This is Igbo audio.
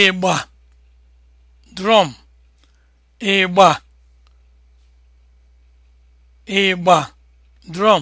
ịgba drum ịgba ịgba drum